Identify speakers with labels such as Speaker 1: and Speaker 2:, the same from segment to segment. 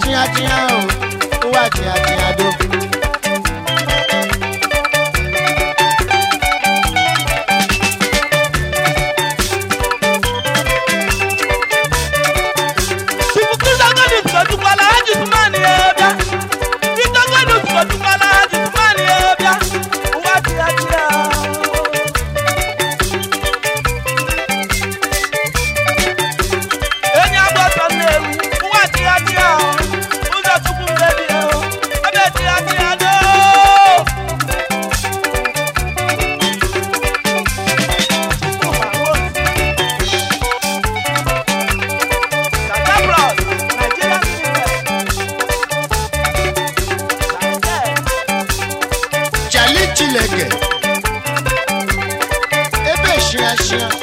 Speaker 1: chịa chịa ụwa chịa chịa do chineke ebe shia e shia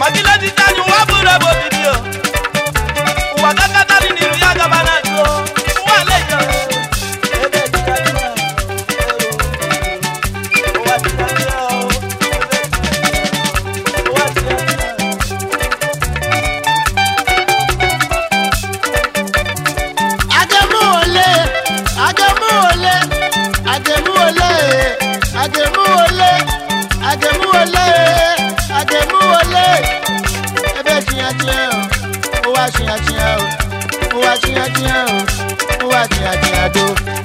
Speaker 1: ma dilejita anyị nwa bụrụ ebe chia chia o, ụwa chia ahụ o, ụwa chia adị do.